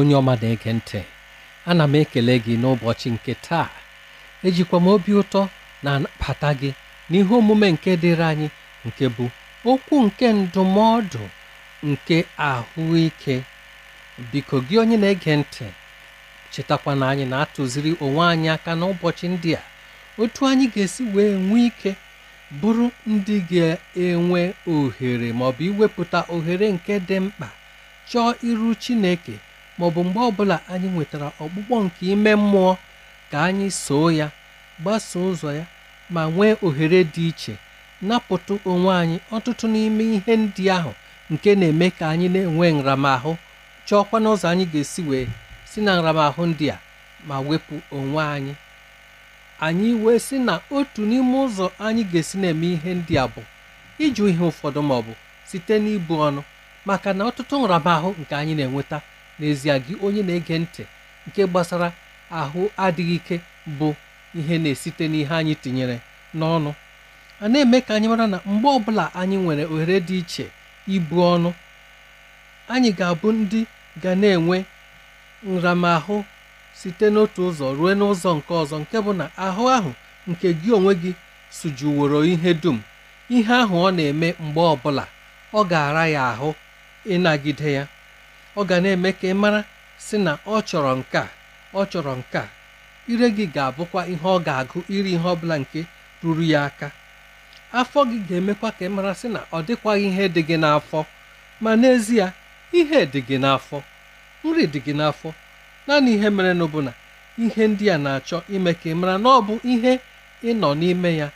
onye ọma na-ege ntị ana m ekele gị n'ụbọchị nke taa ejikwa m obi ụtọ na abata gị n'ihe omume nke dịrị anyị nke bụ okwu nke ndụmọdụ nke ahụike biko gị onye na-ege ntị chetakwa na anyị na-atụziri onwe anyị aka n'ụbọchị ndị a otu anyị ga-esi wee nwee ike bụrụ ndị ga-enwe ohere maọbụ iwepụta ohere nke dị mkpa chọọ iru Chineke maọbụ mgbe ọbụla anyị nwetara ọkpụkpọ nke ime mmụọ ka anyị soo ya gbasoo ụzọ ya ma nwee ohere dị iche napụtụ onwe anyị ọtụtụ n'ime ihe ndị ahụ nke na-eme ka anyị na-enwe nramahụ chọọkwa n'ụzọ anyị ga-esi wee si na nramahụ ndị a ma wepụ onwe anyị anyị wee sị na otu n'ime ụzọ anyị ga-esi na-eme ihe ndị a bụ ịjụ ihe ụfọdụ maọbụ bụ site n'ibu ọnụ maka na ọtụtụ nramahụ nke anyị na-enweta n'ezie gị onye na-ege ntị nke gbasara ahụ adịghị ike bụ ihe na-esite n'ihe anyị tinyere n'ọnụ a na-eme ka anyị mara na mgbe ọbụla anyị nwere ohere dị iche ibu ọnụ anyị ga-abụ ndị ga na-enwe nramahụ site n'otu ụzọ ruo n'ụzọ nke ọzọ nke bụ na ahụ ahụ nke gị onwe gị sujuworo ihe dum ihe ahụ ọ na-eme mgbe ọbụla ọ ga-ara ya ahụ ịnagide ya ọ ga na-eme ka ị mara sị na ọ chọrọ nke a ọ chọrọ nke a ire gị ga-abụkwa ihe ọ ga-agụ iri ihe ọbụla nke ruru ya aka afọ gị ga-emekwa ka ị mara sị na ọ dịkwaghị ihe dị gị n'afọ ma n'ezie ihe dị gị n'afọ nri dị gị n'afọ naanị ihe mere na na ihe ndị a na-achọ ime ka ị mara na ọ bụ ihe ị nọ n'ime ya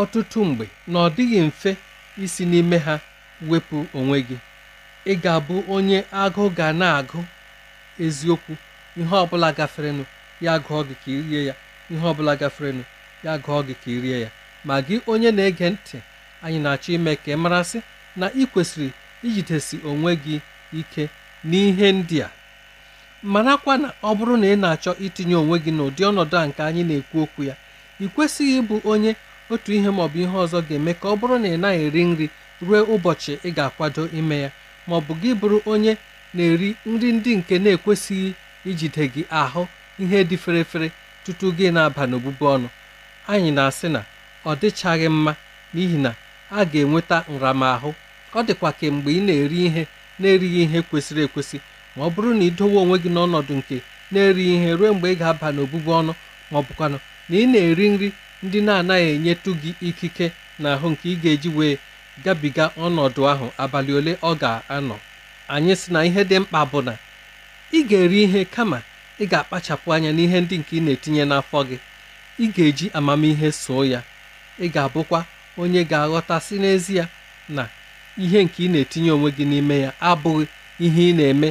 ọtụtụ mgbe na ọ dịghị mfe isi n'ime ha wepụ onwe gị Ị ga abụ onye agụụ ga na agụ eziokwu, ihe ọbụla gaferenụ, ya agụọ gị ka irie rie ya, ihe ọ bụla gaferenụ, ya agụọ gị ka irie ya. Ma gị onye na ege ntị, anyị na-achọ ime ka ị marasị na ị kwesịrị ijidesi onwe gị ike n'ihe ndị a. marakwa na ọ bụrụ na ị na-achọ itinye onwe gị n'ụdị ọnọdụ a nke anyị na-ekwu okwu ya ị kwesịghị ịbụ onye otu ihe maọbụ ihe ọzọ ga-eme ka ọ bụrụ na ị naghị eri nri ruo ụbọchị ị ga-akwado ime ya ma ọ bụ gị bụrụ onye na-eri nri ndị nke na-ekwesịghị ijide gị ahụ ihe dị ferefere tutu gị na-aba n'obubu ọnụ anyị na-asị na ọ dịchaghị mma n'ihi na a ga-enweta nramahụ ọ dịkwa kemgbe ị na-eri ihe na-erighị ihe kwesịrị ekwesị ma ọ bụrụ na ị dowe onwe gị n'ọnọdụ nke na-erighị ihe ruo mgbe ị ga-aba n'obubu ọnụ ma ọ bụkwanụ na ị na-eri nri ndị na-anaghị enyetụ gị ikike n'ahụ nke ị ga-eji wee gabiga ọnọdụ ahụ abalị ole ọ ga-anọ anyị sị na ihe dị mkpa bụ na ị ga-eri ihe kama ị ga-akpachapụ anya n'ihe ndị nke ị na-etinye n'afọ gị ị ga-eji amamihe soo ya ị ga-abụkwa onye ga-aghọtasị n'ezie na ihe nke ị na-etinye onwe gị n'ime ya abụghị ihe ị na-eme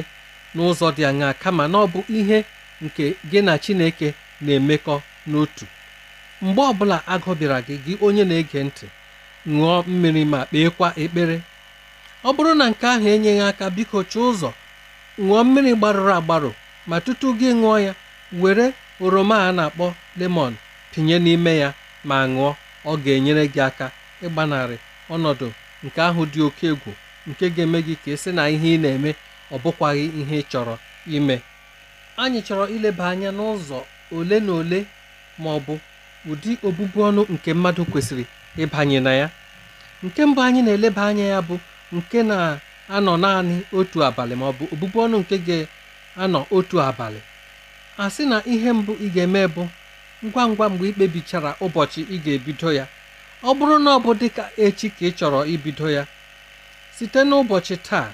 n'ụzọ dị aṅaa kama na ọ bụ ihe nke gị na Chineke na-emekọ n'otu mgbe ọbụla agụ gị gị onye na-ege ntị ṅụọ mmiri ma kpeekwa ekpere ọ bụrụ na nke ahụ enyeghị aka biko chọọ ụzọ ṅụọ mmiri gbarụrụ agbarụ ma tutu gị ṅụọ ya were oroma a na-akpọ lemon pinye n'ime ya ma ṅụọ ọ ga-enyere gị aka ịgbanarị ọnọdụ nke ahụ dị oke egwu nke ga-eme gị ka esi na ihe ị na-eme ọ bụkwaghị ihe ị chọrọ ime anyị chọrọ ileba anya n'ụzọ ole na ole ma ọ bụ ụdị obubu ọnụ nke mmadụ kwesịrị ịbanye na ya nke mbụ anyị na-eleba anya ya bụ nke na-anọ naanị otu abalị ma ọ bụ ọbụbụ ọnụ nke ga-anọ otu abalị a sị na ihe mbụ ị ga-eme bụ ngwa ngwa mgbe ị kpebichara ụbọchị ị ga-ebido ya ọ bụrụ na ọ bụ dị ka echi ka ị chọrọ ibido ya site n'ụbọchị taa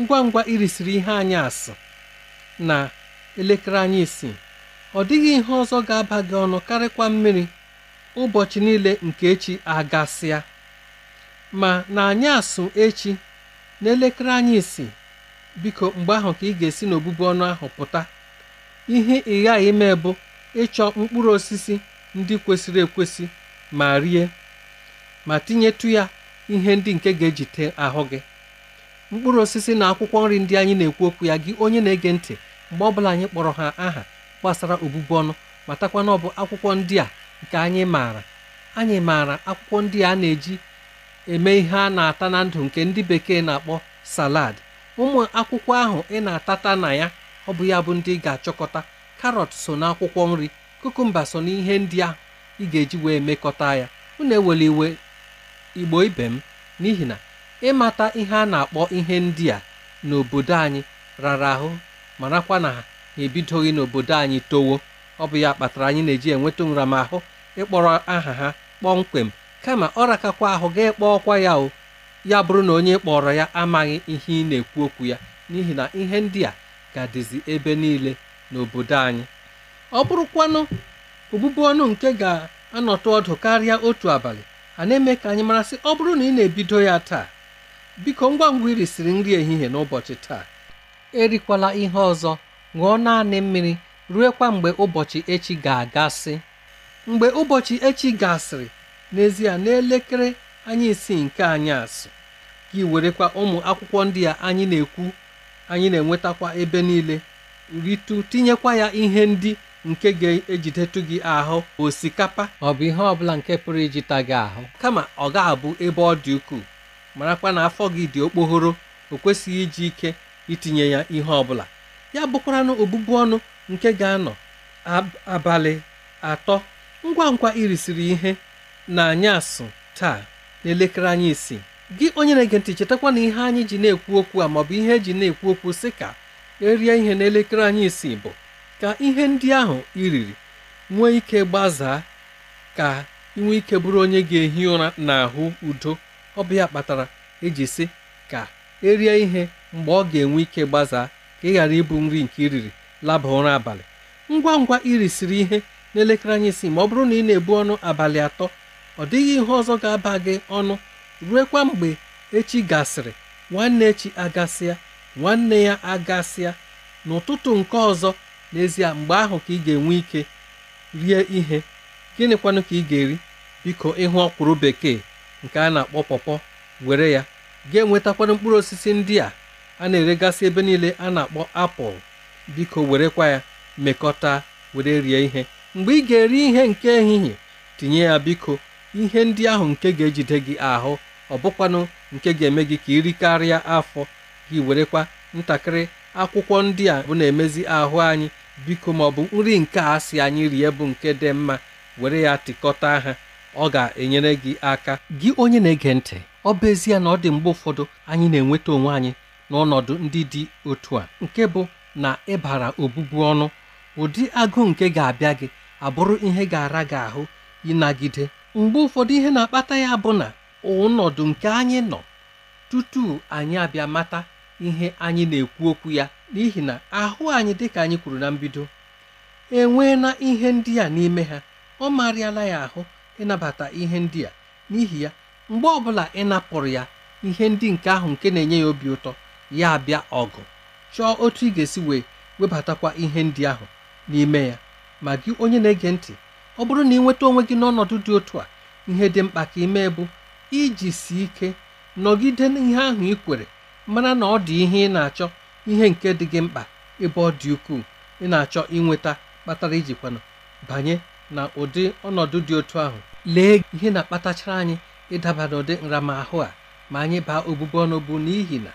ngwa ngwa irisiri ihe anyị asị na elekere anyị isi ọ dịghị ihe ọzọ ga-aba gị ọnụ karịkwa mmiri ụbọchị niile nke echi agasịa ma na anyị asụ echi n'elekere anyị isi biko mgbe ahụ ka ị ga-esi n'obubu ọnụ ahụ pụta ihe ị ime bụ ịchọ mkpụrụ osisi ndị kwesịrị ekwesị ma rie ma tinyetụ ya ihe ndị nke ga-ejite ahụ gị mkpụrụ osisi na akwụkwọ nri ndị anyị na-ekwu okwu ya gị onye na-ege ntị mgbe ọbụla anyị kpọrọ ha aha gbasara obubu ọnụ matakwa na ọ bụ akwụkwọ ndị a nke anyị maara anyị maara akwụkwọ ndị a na-eji eme ihe a na-ata na ndụ nke ndị bekee na-akpọ salad ụmụ akwụkwọ ahụ ị na-atata na ya ọ bụ ya bụ ndị ị ga-achọkọta karọt so na akwụkwọ nri kukumba so na ihe ndị ahụ ị ga-eji wee mekọta ya unu ewele iwe igbo ibe m n'ihi na ịmata ihe a na-akpọ ihe ndị a n'obodo anyị rara ahụ marakwa na ha ebidoghị n'obodo anyị towo ọ bụ ya kpatara anyị na-eji enweta nramahụ ịkpọrọ aha ha kpọmkwem kama ọ rakakwa ahụ gaa kpọọ ọkwa ya o ya bụrụ na onye kpọrọ ya amaghị ihe ị na-ekwu okwu ya n'ihi na ihe ndị a ga-adịzi ebe niile n'obodo anyị ọ bụrụkwanụ ogbugbu ọnụ nke ga-anọtụ ọdụ karịa otu abalị a na-eme ka anyị marasị ọ bụrụ na ị na-ebido ya taa biko ngwa ngwa irisiri nri ehihie n'ụbọchị taa erikwala ihe ọzọ ṅụọ naanị mmiri ruekwa mgbe ụbọchị echi ga-agasị mgbe ụbọchị echi gasịrị n'ezie n'elekere anyị isi nke anyị anyasị gị werekwa ụmụ akwụkwọ ndị a anyị na-ekwu anyị na-enwetakwa ebe niile Ritu tinyekwa ya ihe ndị nke ga-ejidetụ gị ahụ osikapa ọ bụ ihe ọbụla nke pụrụ ijita gị ahụ kama ọ ga-abụ ebe ọ dị ukwuu marakwa na afọ gị dị okpoghoro o kwesịghị iji ike itinye ya ihe ọbụla ya na obụbụ ọnụ nke ga-anọ abalị atọ ngwa ngwa irisiri ihe na asụ taa n'elekere anyị isi gị onye na-ege ntị chetakwa na ihe anyị ji na-ekwu okwu a maọbụ ihe e ji na-ekwu okwu sị ka erie ihe n'elekere anyị isi bụ ka ihe ndị ahụ iriri nwee ike gbazaa ka inwe ike bụrụ onye ga-ehi ụra n'ahụ udo ọbịa kpatara eji sị ka erie ihe mgbe ọ ga-enwe ike gbazaa ka ị ghara ịbụ nri nke iriri laba ụra abalị ngwa ngwa irisiri ihe n'elekere anyị si ma ọ bụrụ na ị na-ebu ọnụ abalị atọ ọ dịghị ihe ọzọ ga-aba gị ọnụ ruekwa mgbe echi gasịrị nwanne echi agasịa nwanne ya agasịa n'ụtụtụ nke ọzọ n'ezie mgbe ahụ ka ị ga-enwe ike rie ihe gịnịkwanụ ka ị ga-eri biko ịhụ ọkwụrụ bekee nke a na-akpọ pọpọ were ya ga-enwetakwana mkpụrụ osisi ndị a a na-eregasị ebe niile a na-akpọ apụl biko werekwa ya mekọta were rie ihe mgbe ị ga-eri ihe nke ehihie tinye ya biko ihe ndị ahụ nke ga-ejide gị ahụ ọ bụkwanụ nke ga-eme gị ka irikarịa afọ gị werekwa ntakịrị akwụkwọ ndị a bụ na-emezi ahụ anyị biko ma ọ bụ nri nke a si anyị rie bụ nke dị mma were ya tịkọta ha ọ ga-enyere gị aka gị onye na-ege ntị ọ bụ ezie na ọ dị mgbe ụfọdụ anyị na-enweta onwe anyị n'ọnọdụ ndị dị otu a nke bụ na ịbara obubu ọnụ ụdị agụụ nke ga-abịa gị abụrụ ihe ga-ara gị ahụ ịnagide mgbe ụfọdụ ihe na-akpata ya bụ na ọnọdụ nke anyị nọ tutu anyị abịa mata ihe anyị na-ekwu okwu ya n'ihi na ahụ anyị dịka anyị kwuru na mbido enweela ihe ndị a n'ime ha ọ marịala ya ahụ ịnabata ihe ndị a n'ihi ya mgbe ọbụla ị napụrụ ya ihe ndị nke ahụ nke na-enye ya obi ụtọ ya abịa ọgụ chọọ otu ị ga-esi wee webatakwa ihe ndị ahụ n'ime ya ma gị onye na-ege ntị ọ bụrụ na ị nweta onwe gị n'ọnọdụ dị otu a ihe dị mkpa ka mee bụ iji si ike nọgide n'ihe ahụ ị kwere mara na ọ dị ihe ị na-achọ ihe nke dị gị mkpa ebe ọ dị ukwuu ị na-achọ inweta kpatara ijikwana banye na ụdị ọnọdụ dị otu ahụ lee ihe na-akpatachara anyị ịdaba n'ụdị nramahụ a ma anyị baa obubu ọnụ bụ n'ihi na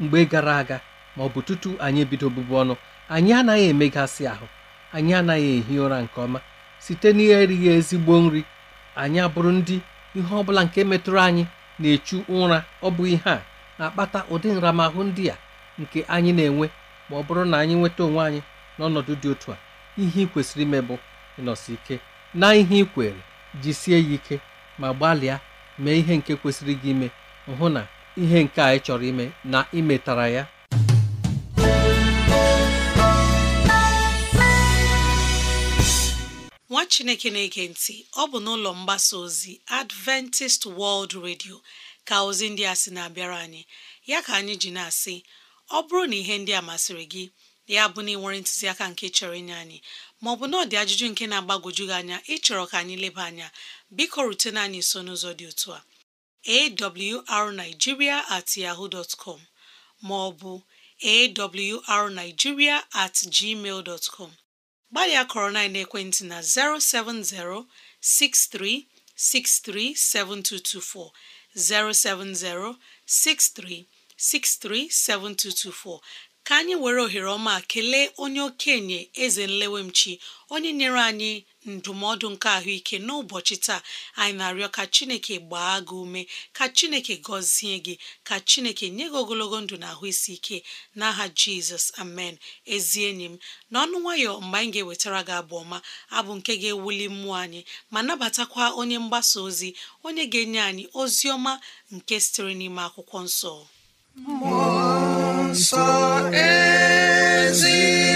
mgbe gara aga ma ọ bụ tutu anyị ebido bụbu ọnụ anyị anaghị emegasị ahụ anyị anaghị ehi ụra nke ọma site na erighị ezigbo nri anyị abụrụ ndị ihe ọbụla nke metụrụ anyị na-echu ụra ọ bụ ihe a na-akpata ụdị nramahụ ndị a nke anyị na-enwe ma ọ bụrụ na anyị nweta onwe anyị n'ọnọdụ dị otu a ihe ị kwesịrị ime bụ ịnọsi ike na ihe ị kwere jisie ya ike ma gbalịa mee ihe nke kwesịrị gị ime hụ na ihe nke a ị chọrọ ime na ịmetara ya nwa chineke na-ege ntị ọ bụ n'ụlọ mgbasa ozi adventist world radio ka ozi ndị a sị na-abịara anyị ya ka anyị ji na-asị ọ bụrụ na ihe ndị a masịrị gị ya bụ na ị nwere ntụziaka nke chọrọ inye anyị maọbụ na ọ dị ajụjụ nke na-agbagwoju gị anya ịchọrọ ka anyị leba anya biko rutena anyị nso n'ụzọ dị otu a arigiria at yaho dot com maọbụ awrnigeria at gmail dot com gbalịa kọrọ na ekwentị na 070 6363 7224 070 6363 7224 ka anyị were ohere ọma kelee onye okenye eze nlewemchi onye nyere anyị ndụmọdụ nke ahụike n'ụbọchị taa anyị na-arịọ ka chineke gbaa gị ume ka chineke gọzie gị ka chineke nye gị ogologo ndụ na ahụ isi ike n'aha jizọs amen ezi enyi m n'ọnụ nwayọ mgbe anyị ga-ewetara gị abụ ọma abụ nke ga-ewuli mmụọ anyị ma nabatakwa onye mgbasa ozi onye ga-enye anyị ozi ọma nke sitere n'ime akwụkwọ nsọ nsọ ezi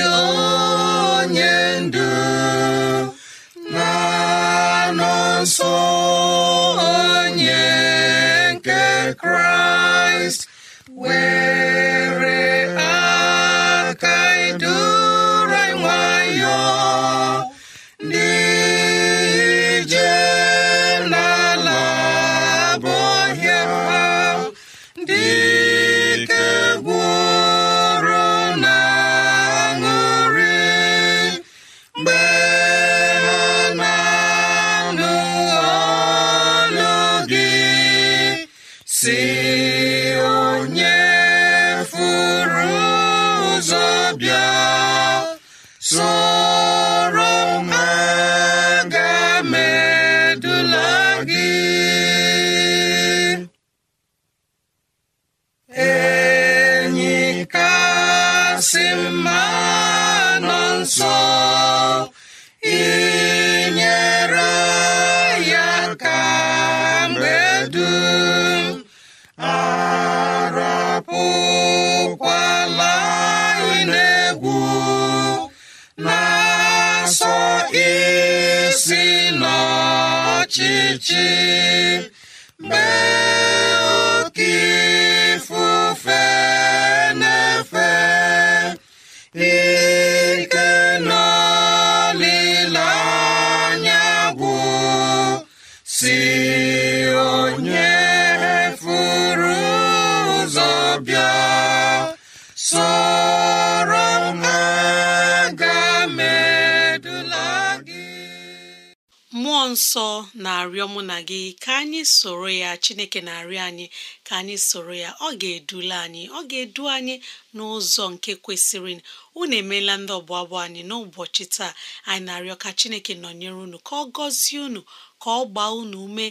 mmụọ nsọ na-arịọ mụ na gị ka anyị soro ya chineke na-arịọ anyị ka anyị soro ya ọ ga-edula anyị ọ ga-edu anyị n'ụzọ nke kwesịrị unu emeela ndị ọbụ abụ anyị n'ụbọchị taa anyị na-arịọ ka chineke nọnyere unu ka ọ gọzie unu ka ọ gbaa unu ume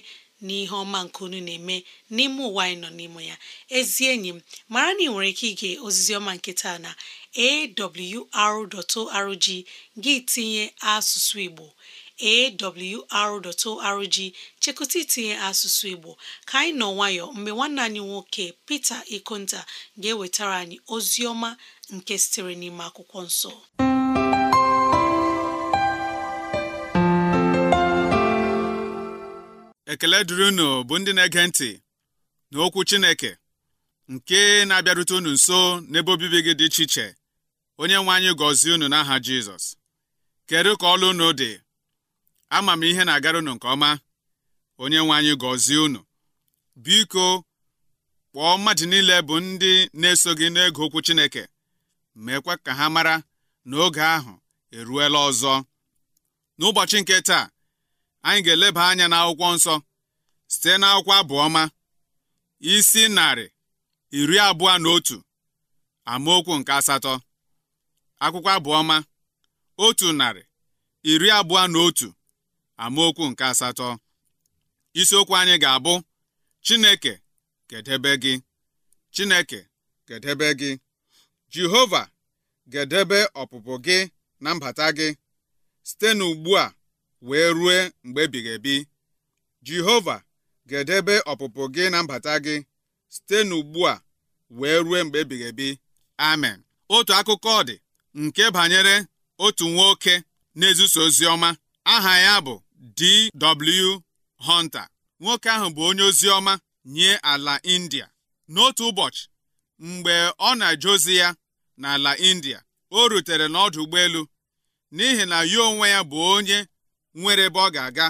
n'ihe ọma nke unu na-eme n'ime ụwa anyị nọ n'ime ya ezi enyi m mara na ị nwere ike ige ozizi ọma nke taa na awr.org gị tinye asụsụ Igbo awr.org chekụta itinye asụsụ Igbo ka anyị nọ nwayọ mgbe nwanne anyị nwoke Pita Ikonta ga-ewetara anyị ozi ọma nke sitere n'ime akwụkwọ nsọ ekele dịrị unu bụ ndị na-ege ntị na Okwu Chineke nke na-abịarute unu nso n'ebe obibi gị dị iche iche onye nwe anyị gọzie unu n'aha Jizọs kedu ka ọlụ unu dị ama m ihe na-agara unu nke ọma onye nwe anyị gọzie unu biko kpọọ mmadụ niile bụ ndị na-eso gị n'ego okwu Chineke meekwa ka ha mara na oge ahụ eruela ọzọ n'ụbọchị nke taa anyị ga-eleba anya n'akwụkwọ nsọ site n'akwụkwọ abụọma isi narị iri abụọ na otu amaokwu nke asatọ akwụkwọ abụọma otu narị iri abụọ na otu amaokwu nke asatọ isiokwu anyị ga-abụ Chineke gedebe gị Chineke gedebe gị Jehova gedebe ọpụpụ gị na mbata gị site n'ugbu a wee rue mgbe ebighị ebi Jehova gedebe ọpụpụ gị na mbata gị site n'ugbu a wee rue mgbe ebighị ebi amen otu akụkọ dị nke banyere otu nwoke na ozi ọma aha ya bụ D.W. Hunter nwoke ahụ bụ onye ozi ọma nye ala India n'otu ụbọchị mgbe ọ na-eje ya n'ala India o rutere n'ọdụ ụgbọelu n'ihi na ya onwe ya bụ onye nwere ebe ọ ga-aga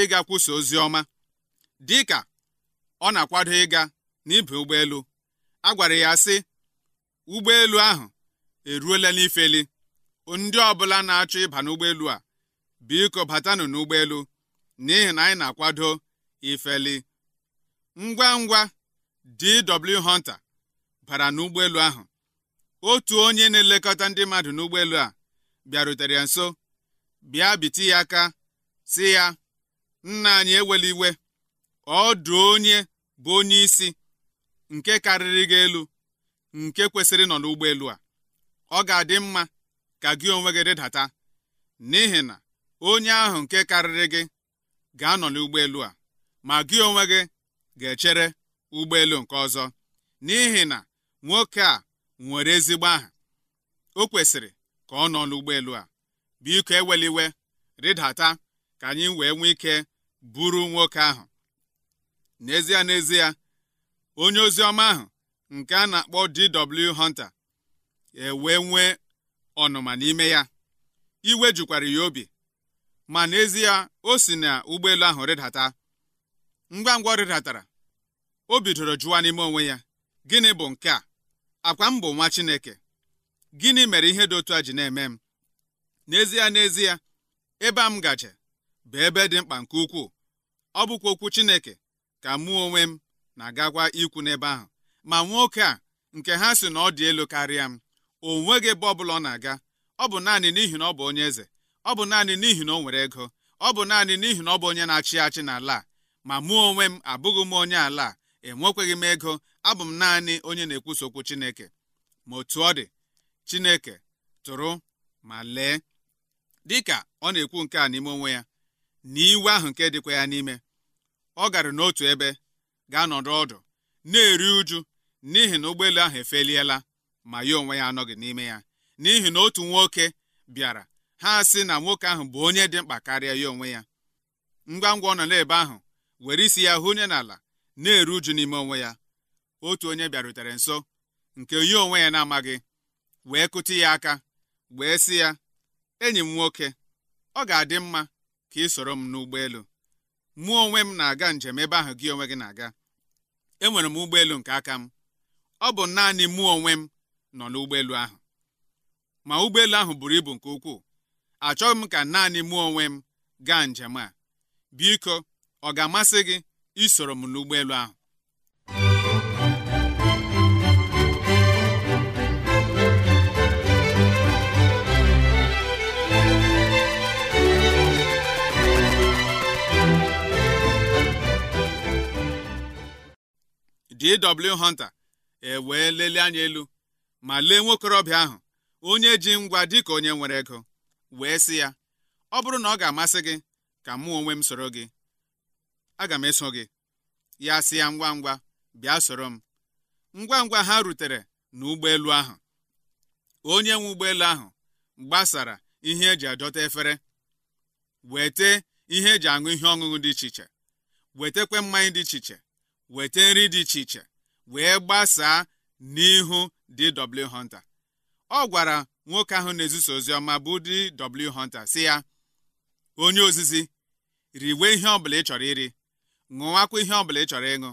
ịga kwụsị ozi ọma dị ka ọ na-akwado ịga n'ibe ụgbọelu a gwara ya sị ụgbọelu ahụ eruola n'ifeli ndị ọbụla na-achọ ịba n'ụgbọelu a biko batanụ n'ụgbọelu n'ihi na anyị na-akwado ifeli ngwa ngwa DW Hunter bara n'ụgbọelu ahụ otu onye na-elekọta ndị mmadụ n'ụgbọelu a bịarutere ya nso bịa biti ya aka si ya nna anyị ewela iwe ọdụ onye bụ onye isi nke karịrị gị elu nke kwesịrị nọ n'ụgbọelu a ọ ga-adị mma ka gị onwe gị rịdata n'ihi na onye ahụ nke karịrị gị ga-anọ n'ụgbọelu a ma gị onwe gị ga-echere ụgbọelu nke ọzọ n'ihi na nwoke a nwere ezigbo aha o kwesịrị ka ọ nọ n'ụgbọelu a biko eweliwe rịdata ka anyị wee nwee ike buru nwoke ahụ n'ezie n'ezie onye ozi ọma ahụ nke a na-akpọ D.W. Hunter ewee nwee ọnụma n'ime ya iwe jukwara ya obi ma n'ezie o si na ụgbọelu ahụ rịdata ngwa ngwa ọ rịdatara o bidoro jụwa n'ime onwe ya gịnị bụ nke a akwa m bụ nwa Chineke gịnị mere ihe dị otu a ji na-eme m n'ezie n'ezie ebe a m gaje bụ ebe dị mkpa nke ukwuu ọ bụkwa okwu Chineke ka mụ onwe m na-agagwa ikwu n'ebe ahụ ma nwoke a nke ha si na ọ dị elu karịa m o nweghị ebe ọ bụla ọ na-aga ọ bụ naanị n'ihi na ọ bụ onye eze ọ bụ naanị n'ihi na o nwere ego ọ bụ naanị n'ihi na ọ bụ onye na-achị achị n'ala ma mụ onwe m abụghị m onye ala enwekweghị m ego abụ m naanị onye na-ekwusa okwu Chineke ma otu ọ dị Chineke tụrụ ma lee dịka ọ na-ekwu nke a n'ime onwe ya na iwe ahụ nke dịkwa ya n'ime ọ gara n'otu ebe gaa n'ọdụ ọdụ na-eri uju n'ihi na ụgbọelu ahụ efeliela ma ya onwe ya anọghị n'ime ya n'ihi na otu nwoke bịara ha sị na nwoke ahụ bụ onye dị mkpa karịa ya onwe ya ngwa ngwa ọ nọ n'ebe ahụ were isi ya hụ onye n'ala na-eru uju n'ime onwe ya otu onye bịarutere nso nke onye onwe ya na-amaghị wee kụti ya aka wee sị ya enyi m nwoke ọ ga-adị mma ka ị soro m n'ụgbọelu mụ onwe m na-aga njem ebe ahụ gị onwe gị na-aga enwere m ụgbọelu nke aka m ọ bụ naanị mụ onwe m nọ n'ụgbọelu ahụ ma ụgbọelu ahụ buru ibu nke ukwuu achọghị m ka naanị mụ onwe m gaa njem a biko ọ ga-amasị gị isoro m n'ụgbọelu ahụ D.W. Hunter ewee lelee anya elu ma lee nwokorobịa ahụ onye ji ngwa dịka onye nwere ego wee sị ya ọ bụrụ na ọ ga-amasị gị ka mụ onwe m soro gị aga m eso gị ya sị ya ngwa ngwa bịa soro m ngwa ngwa ha rutere n'ụgbọelu ahụ onye nwe ụgbọelu ahụ gbasara ihe eji adọta efere wete ihe eji aṅụ ihe ọṅụṅụ dị iche iche wetekwe mmanya dị iche iche wete nri dị iche iche wee gbasaa n'ihu D.W. Hunter ọ gwara nwoke ahụ na-ezisa ozi ọma bụ ụdị W Hunter si ya onye ozizi riwe ihe ọbụla ị chọrọ iri ṅụwakwa ihe ọbụla ị chọrọ ịṅụ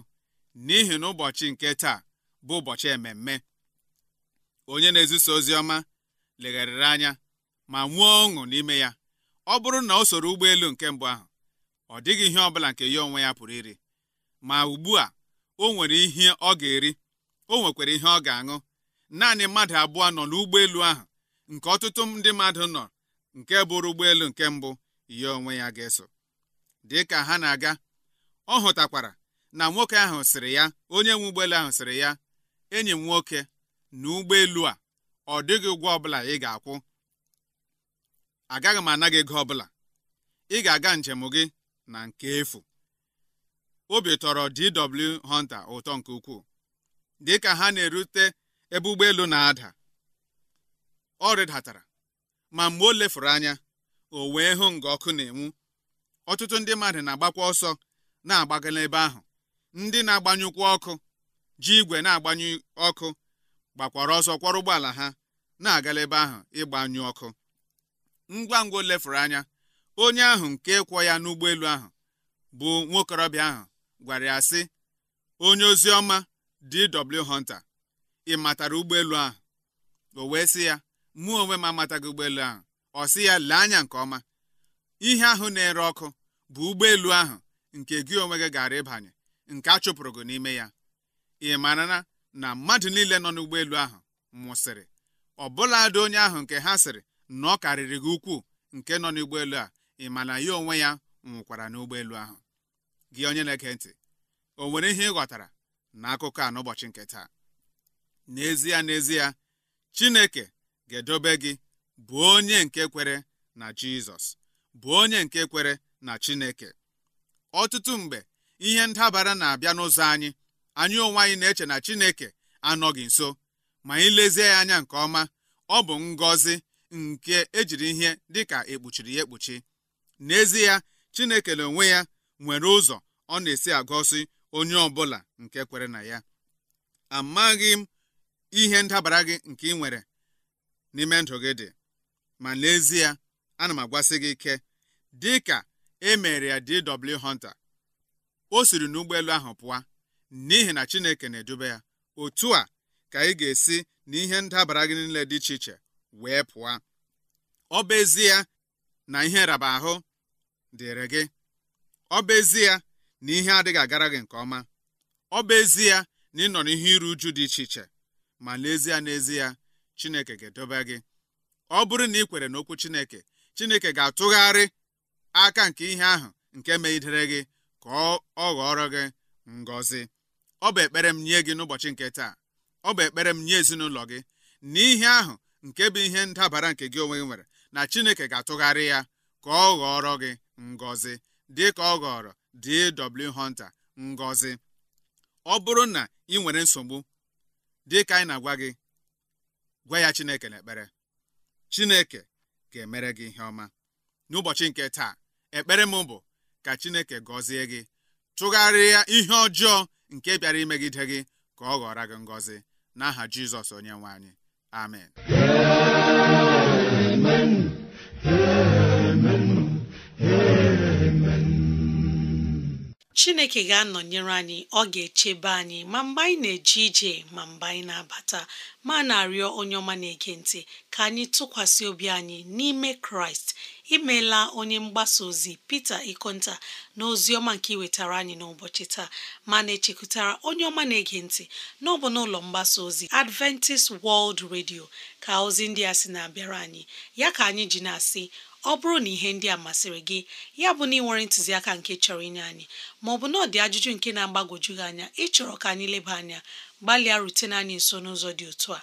n'ihi na ụbọchị nke taa bụ ụbọchị ememme onye na-ezisa ozi ọma legharịrị anya ma nwee ọṅụ n'ime ya ọ bụrụ na o soro ụgbọelu nke mbụ ahụ ọ dịghị ihe ọbụla nke ya onwe ya pụrụ iri ma ugbu a o nwere ihe ọ ga-eri o nwekwara ihe ọ ga-aṅụ naanị mmadụ abụọ nọ n'ụgbọelu ahụ nke ọtụtụ ndị mmadụ nọ nke bụrụ ụgbọelu nke mbụ ya onwe ya ga-eso dị ka ha na-aga ọ hụtakwara na nwoke ahụ sịrị ya onye nwe ụgbọelu ahụ sịrị ya enyi m nwoke na ụgbọelu a ọ dịghị ụgwọ ọbụla ị ga-akwụ agaghị m anaghị gị ọbụla ị ga-aga njem gị na nke efu obi tọrọ DW Hunter ụtọ nke ukwuu dịka ha na-erute ebe ụgbọelu na-ada ọ rịdatara ma mgbe o lefuru anya o wee hụ nga ọkụ na-enwu ọtụtụ ndị mmadụ na-agbakwa ọsọ na-agbaga n'ebe ahụ ndị na-agbanyụkwa ọkụ ji igwe na-agbanyụ ọkụ gbakwara ọsọ kwọrọ ụgbọala ha na-agala ebe ahụ ịgbanyụ ọkụ ngwa ngwa o lefuru anya onye ahụ nke kwọ ya n'ụgbọelu ahụ bụ nwokorobịa ahụ gwara ya sị onye ozi ọma DW Hunter ị matara ụgbọelu ahụ o wee sị ya mụ onwe m amataghị ụgbọelu ahụ ọ sị ya lee anya nke ọma ihe ahụ na-ere ọkụ bụ ụgbọelu ahụ nke gị onwe gị gara ịbanye nke a chụpụrụ gị n'ime ya ị marana na na mmadụ niile nọ n'ụgbọelu ahụ nwụsịrị ọbụladị onye ahụ nke ha sịrị na ọ karịrị gị ukwuu nke nọ n'ụgbọelu a ị ma na ya onwe ya nwụkwara n'ụgbọelu ahụ gị onye na-ege ntị o nwere ihe ị ghọtara na akụkọ a n'ụbọchị nke taa n'ezie n'ezie Chineke gedobe gị bụ onye nke kwere na Jizọs bụ onye nke kwere na Chineke ọtụtụ mgbe ihe ndabara na-abịa n'ụzọ anyị anyị onwe anyị na-eche na Chineke anọghị nso ma anyị lezie ya anya nke ọma ọ bụ ngọzi nke ejiri ihe dịka ekpuchiri ya ekpuchi n'ezie Chineke na onwe ya nwere ụzọ ọ na-esi agọzi onye ọbụla nke kwere na ya amaghị m ihe ndabara gị nke ị nwere n'ime ndụ gị dị ma n'ezie ana m agwasi gị ike dị ka e mere ya DW Hunter o siri n'ụgbọelu ahụ pụọ n'ihi na Chineke na-edube ya otu a ka ị ga-esi na ihe ndabara gị niile dị iche iche wee pụọ ọ ezie na ihe raba ahụ dịrị gị ọ ezie na ihe adịghị agara gị nke ọma ọ ezie na ị nọ n'ihe iru uju dị iche iche ma n'ezie n'ezie Chineke ga-edobe gị ọ bụrụ na ị kwere n'okwu Chineke Chineke ga-atụgharị aka nke ihe ahụ nke megidere gị ka ọ ghọrọ gị ngọzi ọ bụ ekpere m nye gị n'ụbọchị nke taa ọ bụ ekpere m nye ezinụlọ gị na ihe ahụ nke bụ ihe ndabara nke gị onwe gị nwere na Chineke ga-atụgharị ya ka ọ ghọrọ gị ngọzi dị ka ọ ghọrọ D.W. Hunter ngọzi ọ bụrụ na ị nwere nsogbu dị ka anyị na-agwa gị gwa ya Chineke na ekpere, Chineke ga-emere gị ihe ọma n'ụbọchị nke taa ekpere m bụ ka Chineke gọzie gị tụgharịa ihe ọjọọ nke bịara imegide gị ka ọ ghọrọ gị ngọzi n'aha Jizọs onye nwe anyị amen amen chineke ga-anọnyere anyị ọ ga-echebe anyị ma mgbe anyị na-eje ije ma mgbe anyị na-abata ma na-arịọ onye ọma na-ege ntị ka anyị tụkwasị obi anyị n'ime kraịst imeela onye mgbasa ozi Peter Ikonta na ọma nke iwetara anyị n'ụbọchị taa ma na-echekwutara onye ọma na-ege ntị n'ọbụ n'ụlọ mgbasa ozi Adventist World Radio ka ozi ndị a sị na-abịara anyị ya ka anyị ji na-asị ọ bụrụ na ihe ndị a masịrị gị ya bụ na ị nwere ntụziaka nke chọrọ inye anyị maọbụ na ọdị ajụjụ nke na-agbagwoju gị anya ịchọrọ ka anyị leba anya gbalịa rutene anyị nso n'ụzọ dị otu a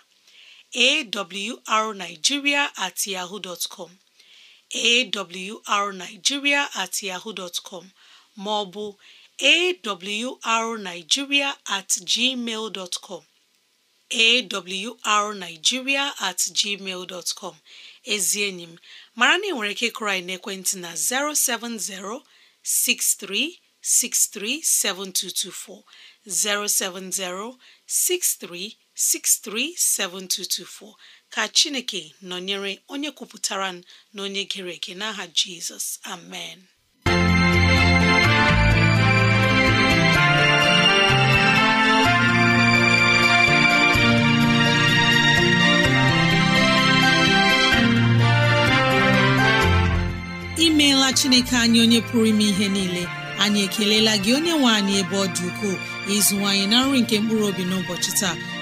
awrnigeria at yahoo dot com awrnigeria at yahoo dot com ma ọ bụ awrnigeria at gmail dot com awrnigeria at gmail dot com ezi enyi m mara na ị nwere ike ịkụrụ anyị na 070 6363 7224 070 63 637224 ka Chineke nọnyere onye kwupụtara n'onye onye gere eke n'aha Jizọs amen imeela chineke anyị onye pụrụ ime ihe niile anyị ekelela gị onye nwe anyị ebe ọ dị ukwuu ịzụwanyị na nri nke mkpụrụ obi n'ụbọchị taa